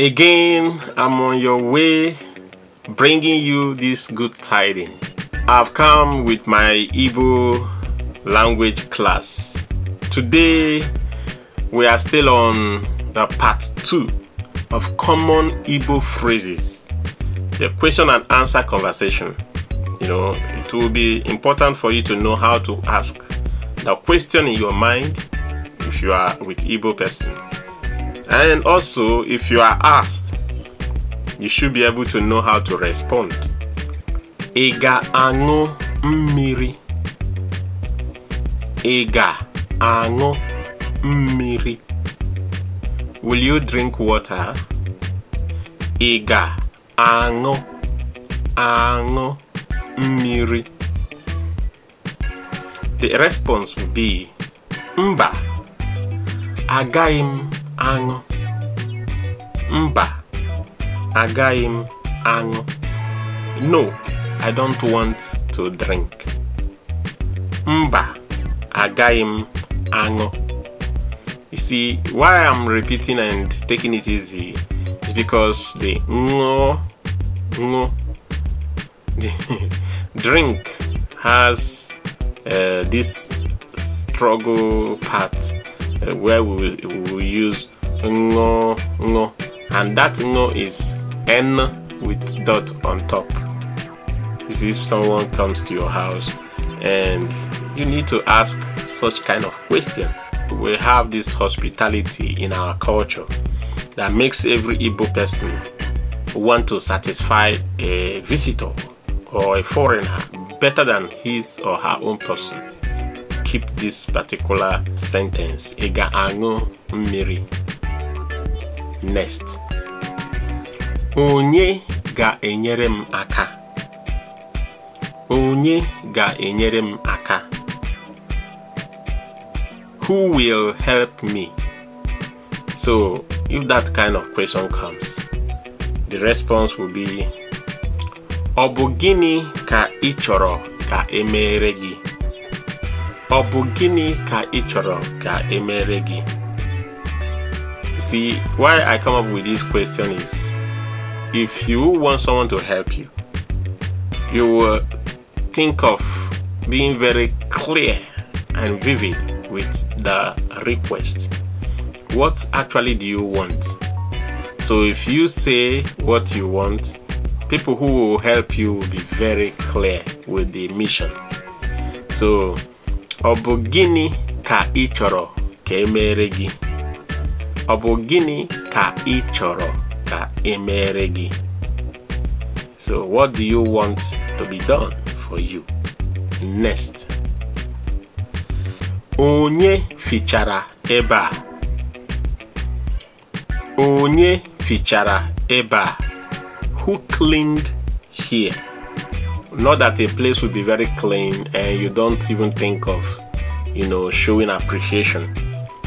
Again, I'm on your way bringing you this good tidings. I've come with my Igbo language class. Today, we are still on the part 2 of common Igbo phrases, the question and answer conversation. You know, it will be important for you to know how to ask the question in your mind if you are with Igbo person. And also, if you are asked, you should be able to know how to respond. Ega ango mmiri. Ega ango mmiri. Will you drink water? Ega ango ango mmiri. The response will be mba agaim aṅụ mba agaghị m aṅụ no i don't want to drink mba agaghị m aṅụ you see why i'm repeating and taking it easy is because the ṅụ ṅụ drink has uh, this struggle part where we will, we will use ngo ngo and that ngo is n with dot on top this is if someone comes to your house and you need to ask such kind of question we have this hospitality in our culture that makes every Igbo person want to satisfy a visitor or a foreigner better than his or her own person keep this particular sentence Ega ga ga-aṅụ mmiri next onye ga-enyere m aka onye ga-enyere m aka who will help me so if that kind of question comes the response will be ọ bụ gịnị ka ị chọrọ ka emere gị ọ bụ gịnị ka ị chọrọ ka emere gị see why i come up with this question is if you want someone to help you you will think of being very clear and vivid with the request what actually do you want so if you say what you want people who will help you will be very clear with the mission so ọ bụ gịnị ka ị chọrọ ka emere gị ọ bụ gịnị ka ị chọrọ ka emere gị so what do you want to be done for you next onye fichara ebe a onye fichara ebe a who cleaned here Not that a place would be very clean and you don't even think of, you know, showing appreciation.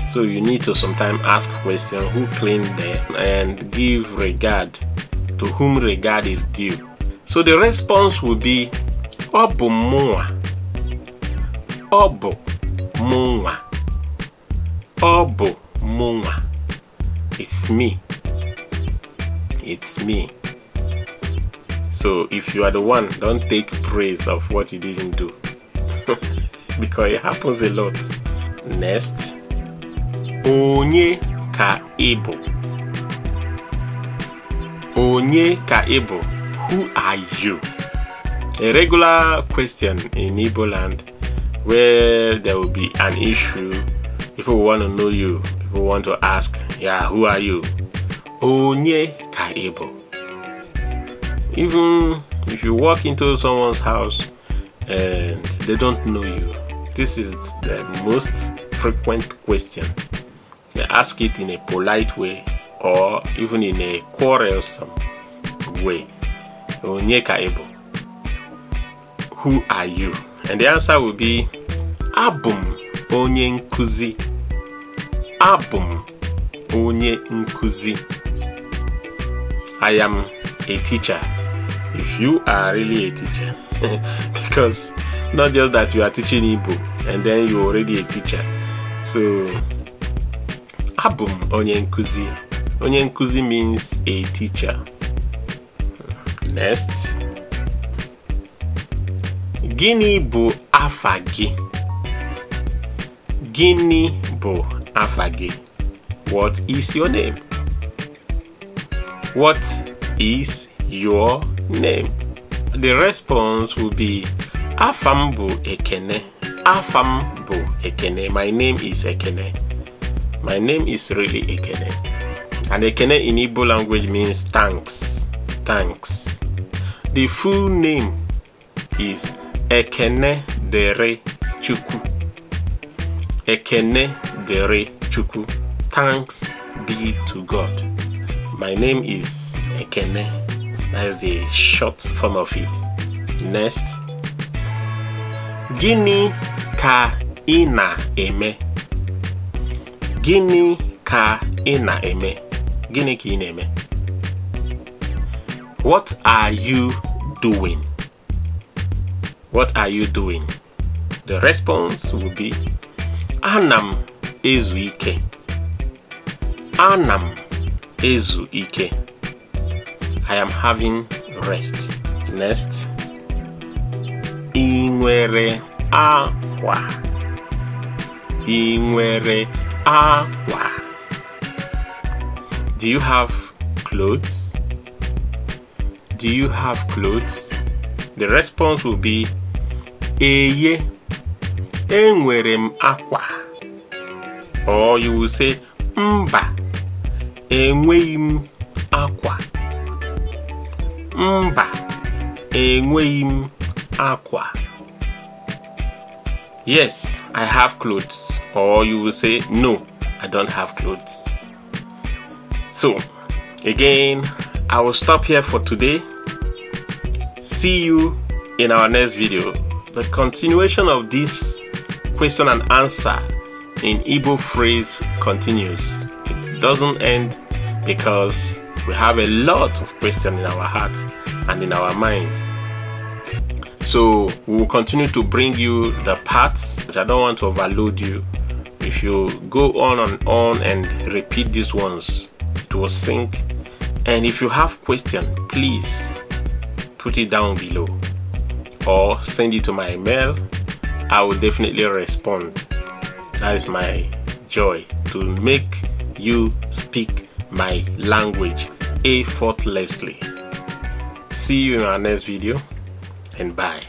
So you need to sometimes ask question who cleaned there and give regard to whom regard is due. So the response would be Obu mwa. Obu mwa. Obu mwa. It's me. It's me. So if you are the one, don't take praise of what you didn't do. because it happens a lot. Next, onye ka ebo. Onye ka ebo. Who are you? A regular question in Igbo land where there will be an issue. People want to know you. People want to ask, yeah, who are you? Onye ka ebo even if you walk into someone's house and they don't know you this is the most frequent question they ask it in a polite way or even in a quarrelsome way who are you and the answer will be abum onye nkuzi abum onye nkuzi i am a teacher if you are really a teacher because not just that you are teaching Igbo and then you're already a teacher so Abum m onye means a teacher next gịnị bụ afagi gịnị bụ afagi what is your name what is your name. The response will be Afambo bu Ekene. Afam Ekene. My name is Ekene. My name is really Ekene. And Ekene in Igbo language means thanks. Thanks. The full name is Ekene Dere Chuku. Ekene Dere Chuku. Thanks be to God. My name is Ekene that is the short form of it. Next, Gini ka ina eme. Gini ka ina eme. Gini ki ina eme. What are you doing? What are you doing? The response will be Anam ezuike. Anam ezuike. I am having rest. Next. I aqua. akwa. aqua. Do you have clothes? Do you have clothes? The response will be Eye. Enwere aqua, Or you will say Mba. Enweghị aqua mba enweghị m akwa yes i have clothes or you will say no i don't have clothes so again i will stop here for today see you in our next video the continuation of this question and answer in Igbo phrase continues it doesn't end because we have a lot of questions in our heart and in our mind. So we will continue to bring you the parts which I don't want to overload you. If you go on and on and repeat these ones, it will sink. And if you have question, please put it down below or send it to my email. I will definitely respond. That is my joy to make you speak my language effortlessly. See you in our next video and bye.